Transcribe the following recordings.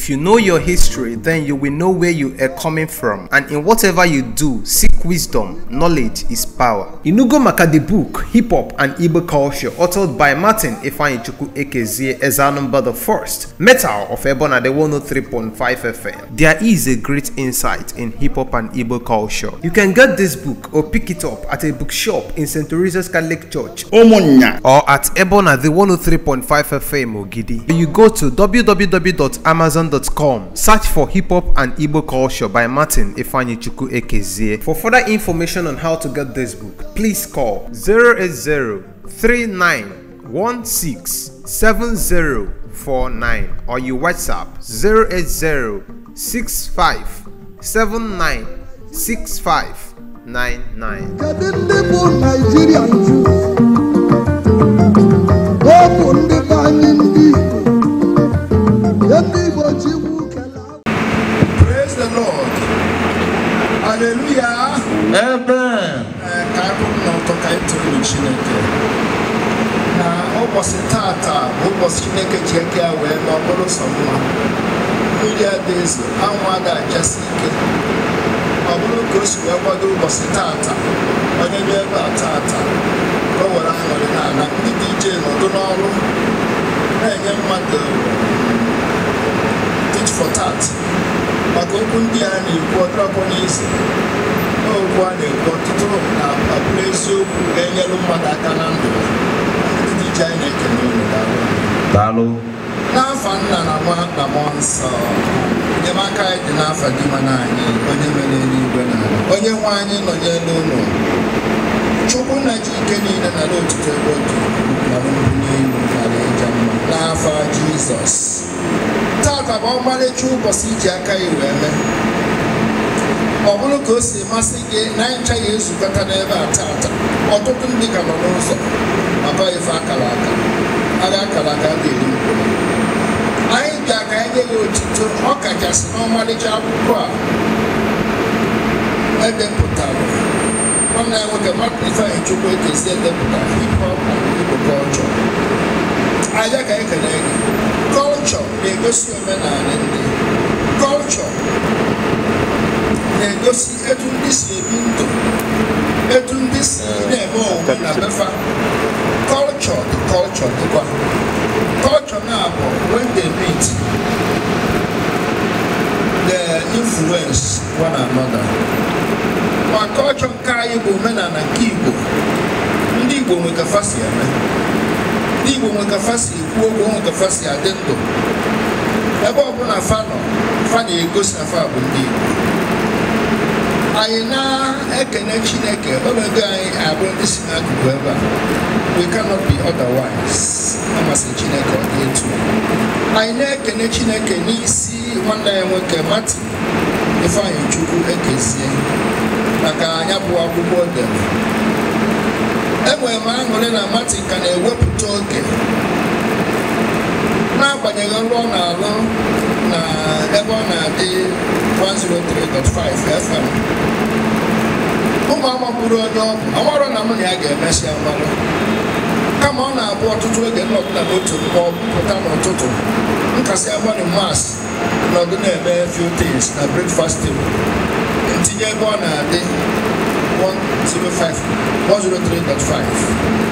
If you know your history, then you will know where you are coming from. And in whatever you do, seek wisdom. Knowledge is power. Inugo Maka the book, Hip Hop and Igbo Culture, authored by Martin Ifanichuku Ekezie Ezanumba the First, Metal of Ebona the 103.5 FM. There is a great insight in hip hop and Igbo culture. You can get this book or pick it up at a bookshop in St. Teresa's Catholic Church, Omonya, or at Ebona the 103.5 FM Ogidi. You go to www.amazon.com Search for Hip Hop and Igbo Culture by Martin Ifanyichukwu Ekezie. For further information on how to get this book, please call 080 39167049 or you WhatsApp 080 65 79 haleluya ebe eh, ka agụ m ka anyị tụrụ chineke na ụbọchị tata ụbọchị chineke ji eke ya wee ma ọbụrụ sọ mma mmiri adaeze ezo anwụ ada achasi ike ọ bụrụ ka o si wee kwado ụbọchị tata onye bịa ebe a tata ka o were aṅụrị n'ala ndị dị nọdụ n'ọrụ na-enye mmadụ um, tit for tat maka okwu ndị a na-ekwu ọtụrụpụ n'isi okwu a na-ekwu ọtụtụ na abụrụ eziokwu ga-enyelu mmadụ aka na ndụ ndị ji anyị na-ekele unu n'afọ nna na nwa na mmụọ nsọ enyemaka anyị dị n'afọ dị mana anyị onye mere eluigwe na onye nwe anyị nọ n'elu ụlọ chukwu na ji ike niile na n'otutu ebe otu na n'elu aja n'afọ jizọs taata bụ ọmarịcha ụbọchị iji aka ya wee mee ọ bụrụ ka o si masị gị na ncha ya ezukọta n'ebe a taata ọtụtụ ndị ka nọ n'ụzọ abaife akara aka arị akara aka ga-eri mkpụrụ anyị bịa ka anyị nye ya otuto ọ kachasị n'ọmarịcha akwụkwọ a edepụtara nwanne ya nwoke martin ifeanyị chukwu ekezie edepụtara e ihe ọkpa igbo kọlchọ Anya ka e ekele gị kọlchọ na-egosi omenala ndị kọlchọ na-egosi etu ndị si ebi ndụ etu ndị si na-eme onwe na befa kọlchọ dị kọlchọ dịkwa kọlchọ na-abụ when they meet the influence one another ma kọlchọ nke anyị bụ omenala nke Igbo ndị Igbo nweka fa si eme ọnụ kafa si ekwu okwu ọnụ kafa si adị ndụ ebe ọbụla fa nọ fa na-egosi na fa bụ ndị Igbo anyị na-ekene Chineke ọnọdụ anyị abụrụ ndị si n'akụkụ ebe a we cannot be otherwise amasị Chineke ọ dị etu anyị na-ekene Chineke n'isi nwanne ya nwoke Martin Ifeanyị Chukwu ekezie maka anya bụ akwụkwọ dere enwere m aṅụrị na Martin ka na-ewepụ ọ na-alụ na ebe ọ na-adị 103.5 FM ụmụ amakwuru onye ọgwụ amarọ na mụ na ya ga-emesi amalụ kama ọ na-abụ ọtụtụ oge nnọpụta n'otu mgbe pụta n'ụtụtụ nkasi agba mas nọdụ na-eme few things na breakfast table ntinye ebe ọ na-adị 105 103.5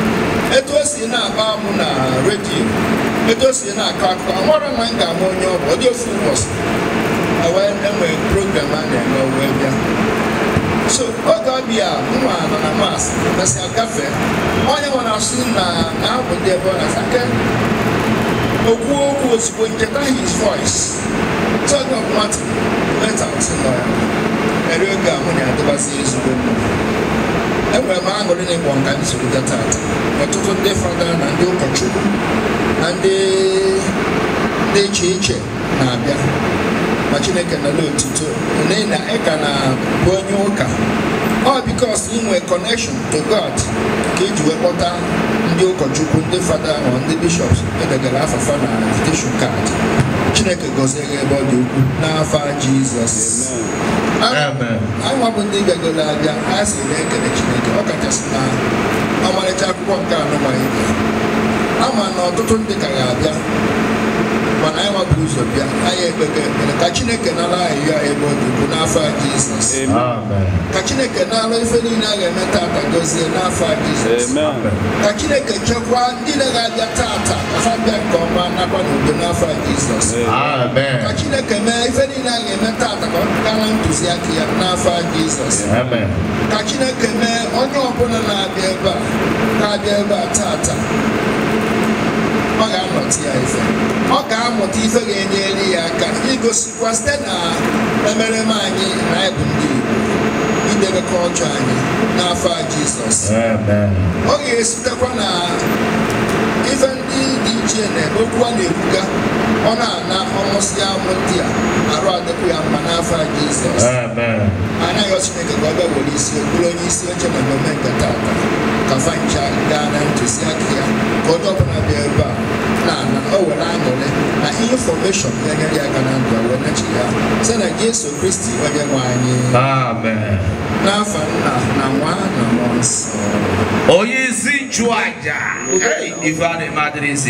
si na agba amụ na redio etu si na-akọ akụkọ amara na m ga-ama onye ọ bụ ọ dị ofu ụbọchị wee enwee program a na-eme wee bịa so oge ọbịa nwa nọ na mas mesị agafe onye na asụ na na-abụ ndị ebe ọ na-asa ke okwu okwu ozugbo nketa his voice tug of nwata metal nọ ya eri oge ahụ na-adịbazi ezigbo mmiri enwere m aṅụrị na ịkpọ nka nsogbuga taata ọtụtụ ndị fada na ndị ụkọchukwu na ndị dị iche iche na-abịa ma chineke nọla otuto na ị na-bụ onye ụka ọ bikos inwe connection to god ka iji wee kpọta ndị ụkọchukwu ndị fada ma ndị bishọps edegara afafa na invitation kaadị chineke gọzie ebe ọ dị ukwu n'afa jizọs anwa bụ ndị gago n'abịa a sị na-ekele Chineke ọ kachasị na ọmarịcha akwụkwọ nke anụmanụ ama na ọtụtụ ndị ka ga-abịa mana anyị wapụrụ ụzọ bịa anyị ekpekọ ekpere ka chineke nara anyị ya ebe ọ dịbu n'afọ a jizọs ka chineke nara ife niile a ga-eme tata dozie n'afọ a jizọs ka chineke chekwaa ndị na-abịa tata afa bịa nke ọma nakwa n'udo n'afọ a jizọs ka chineke mee ife niile a ga-eme tata ka ọ pụtara ntụziaka ya n'afọ a jizọs ka chineke mee onye ọbụla na-abịa ebe a ka abịa ebe a tata ọ ga-amụta ya ife ọ ga-amụta ife ga-enyere ya aka igosikwa site na emereme anyị na anyị bụ ndị Igbo idebe anyị n'afọ a Jizọs ọ ga-esitekwa na ife ndị dị iche na okwu a na-ekwuga ọ na-ana ọmụsị amụ ndị a arụ adịkwa ya mma n'afọ a Jizọs Jizọs Chineke ka ọ bịakwuru isi bụrụ onye isi oche na mmemme nke tata ka fancha gaa na ntụziaka ya ka onye ọbụla bịa ebe a na o were aṅụrị na infọmeshọn ya nyere ya aka na ndụ wee nachi ya sị na Jesu Kristi onye nwe anyị n'afọ nna na nwa na mmụọ nsọ onye isi nchụaja ife a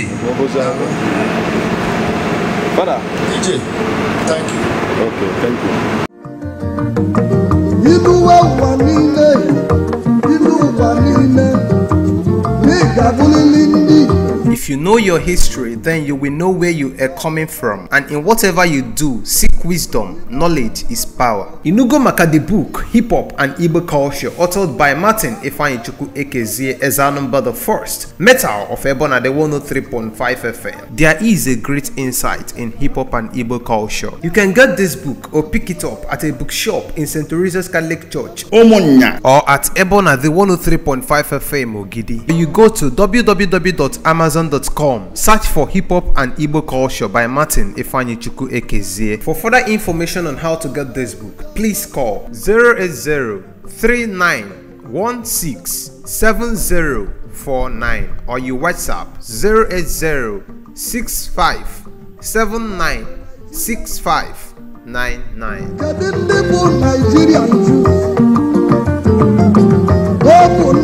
Father. DJ, thank you. Okay, thank you. If you know your history, then you will know where you are coming from. And in whatever you do, seek wisdom. Knowledge is power. Inugo Maka the book, Hip Hop and Igbo Culture, authored by Martin Ifanichuku Ekezie Ezanumba the First, Metal of Ebona the 103.5 FM. There is a great insight in hip hop and Igbo culture. You can get this book or pick it up at a bookshop in St. Teresa's Catholic Church, Omonya, or at Ebona the 103.5 FM Ogidi. You go to www.amazon.com hip Search for Hip Hop and Igbo Culture by Martin Ifanyichuku Ekezie. For further information on how to get this book, please call 080-3916-7049 or you WhatsApp 080-6579-6599. Open